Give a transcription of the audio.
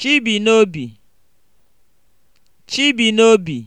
Chibinobi (Chibinobi)